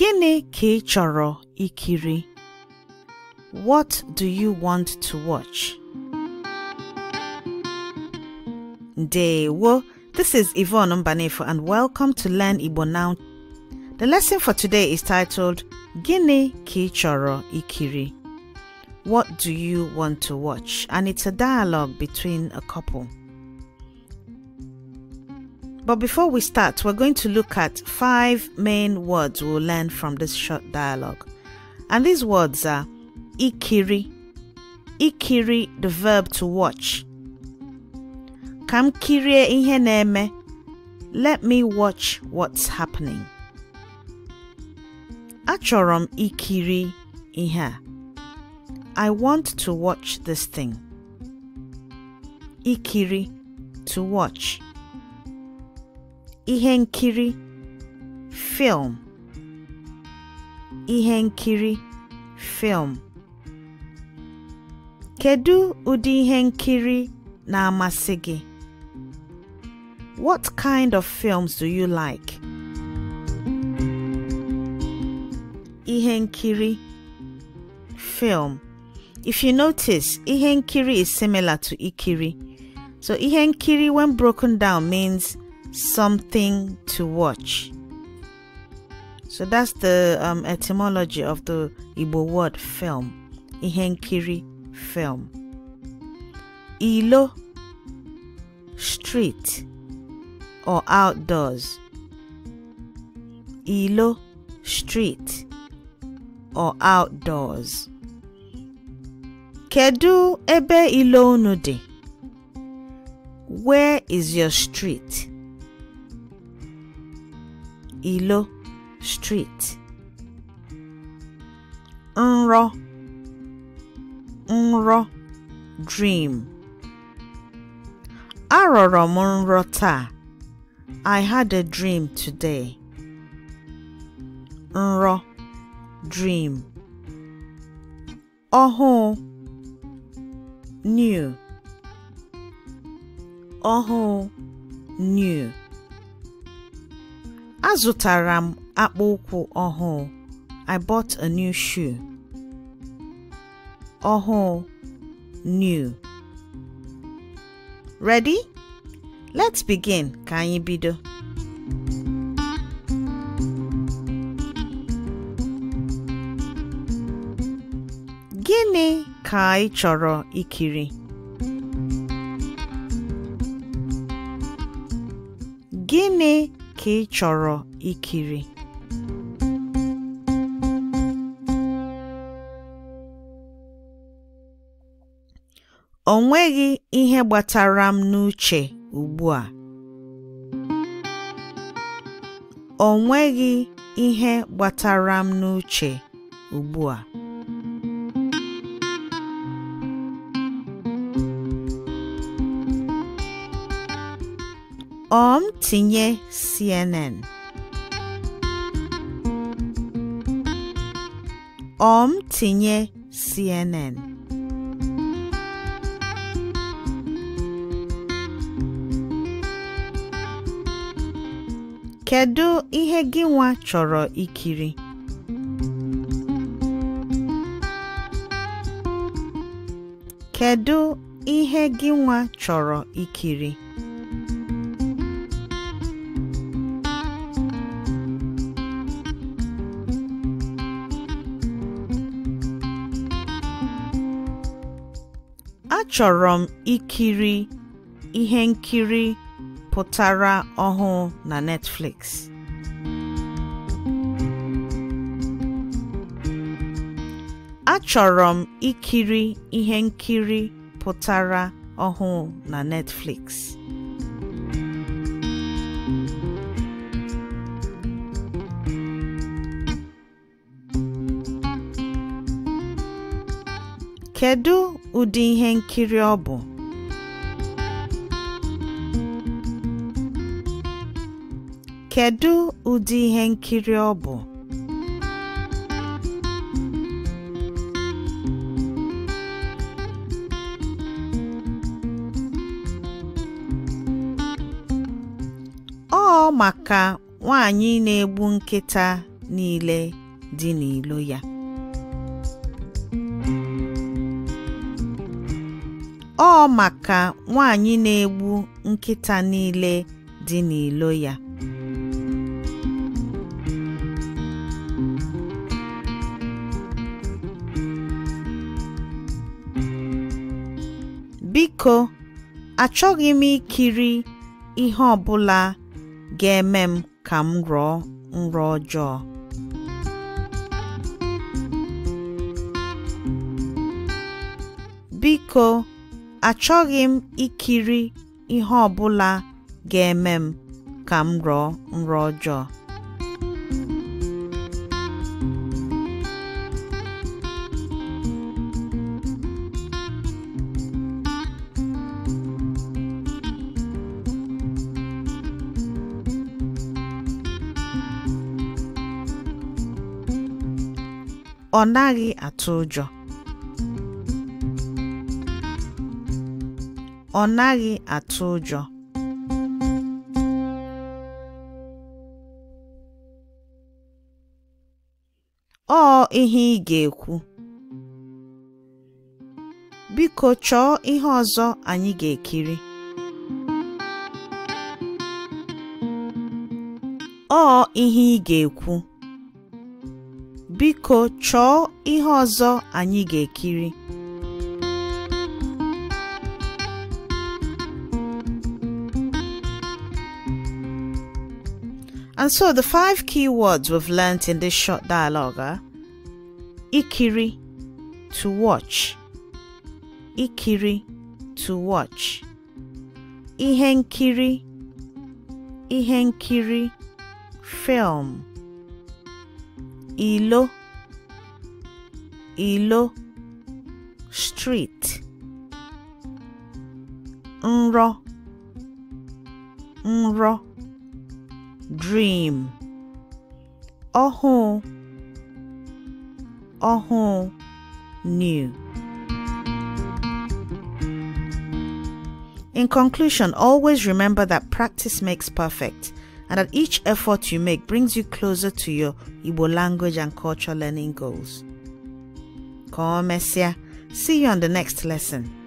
Gịnị ka ị chọrọ ikiri? What do you want to watch? Ndewo, this is Yvonne Mbanefo and welcome to Learn Igbo Now. The lesson for today is titled Gịnị ka ị chọrọ ikiri? What do you want to watch? And it's a dialogue between a couple. But before we start, we're going to look at five main words we'll learn from this short dialogue. And these words are ikiri, ikiri, the verb to watch. Kam kirie ihe let me watch what's happening. Achorom ikiri ihe I want to watch this thing. Ikiri, to watch ihe nkiri film ihe nkiri film kedu ụdị ihe nkiri na-amasị gị what kind of films do you like ihe nkiri film if you notice ihe nkiri is similar to ikiri so ihe nkiri when broken down means something to watch. So that's the um, etymology of the Igbo word film. Ihenkiri film. Ilo street or outdoors. Ilo street or outdoors. Kedu ebe ilo unu Where is your street? Ilo Street. Nro, nro, dream. Arọrọ m Rota, I had a dream today. Nro, dream. Aho, new. Aho, new. Azụtara m akpụ ụkwụ ọhụụ. I bought a new shoe. Ọhụụ new. Ready? Let's begin ka anyị bido. Gịnị ka ị chọrọ ikiri? Gịnị ka ị chọrọ ikiri? O nweghị ihe gbatara m n'uche ugbu a. O nweghị ihe gbatara m n'uche ugbu a. Om tinye CNN. Om tinye CNN. Kedu ihe gị nwa chọrọ ikiri? Kedu ihe gị nwa chọrọ ikiri? Achọrọ m ikiri ihe nkiri pụtara ọhụụ na Netflix. m ikiri ihe nkiri pụtara ọhụụ na Netflix. Kedu ụdị ihe nkiri ọ bụ? Kedu ụdị ihe nkiri ọ bụ? Ọ maka nwanyị na-egbu nkịta niile dị n'ilo ya. ọ maka nwanyị na-egbu nkịta niile dị n'ilo ya biko achọghị m ikiri ihe ọ bụla ga-eme m ka m rụọ nrọ ọjọọ biko Achọghị m ikiri ihe ọ bụla ga-eme m ka m rọọ nrọ ọjọọ. Ọ naghị atụ ụjọ. Ọ naghị atụ ụjọ. Ọ ihe ị ga-ekwu. Biko chọọ ihe ọzọ anyị ga-ekiri. And so the five key words we've learnt in this short dialogue are ikiri, to watch, ikiri, to watch, ihenkiri, ihenkiri, film, ilo, ilo, street, nro, nro dream ọhụụ ọhụụ new In conclusion, always remember that practice makes perfect and that each effort you make brings you closer to your Igbo language and culture learning goals. Come, Messia. See you on the next lesson.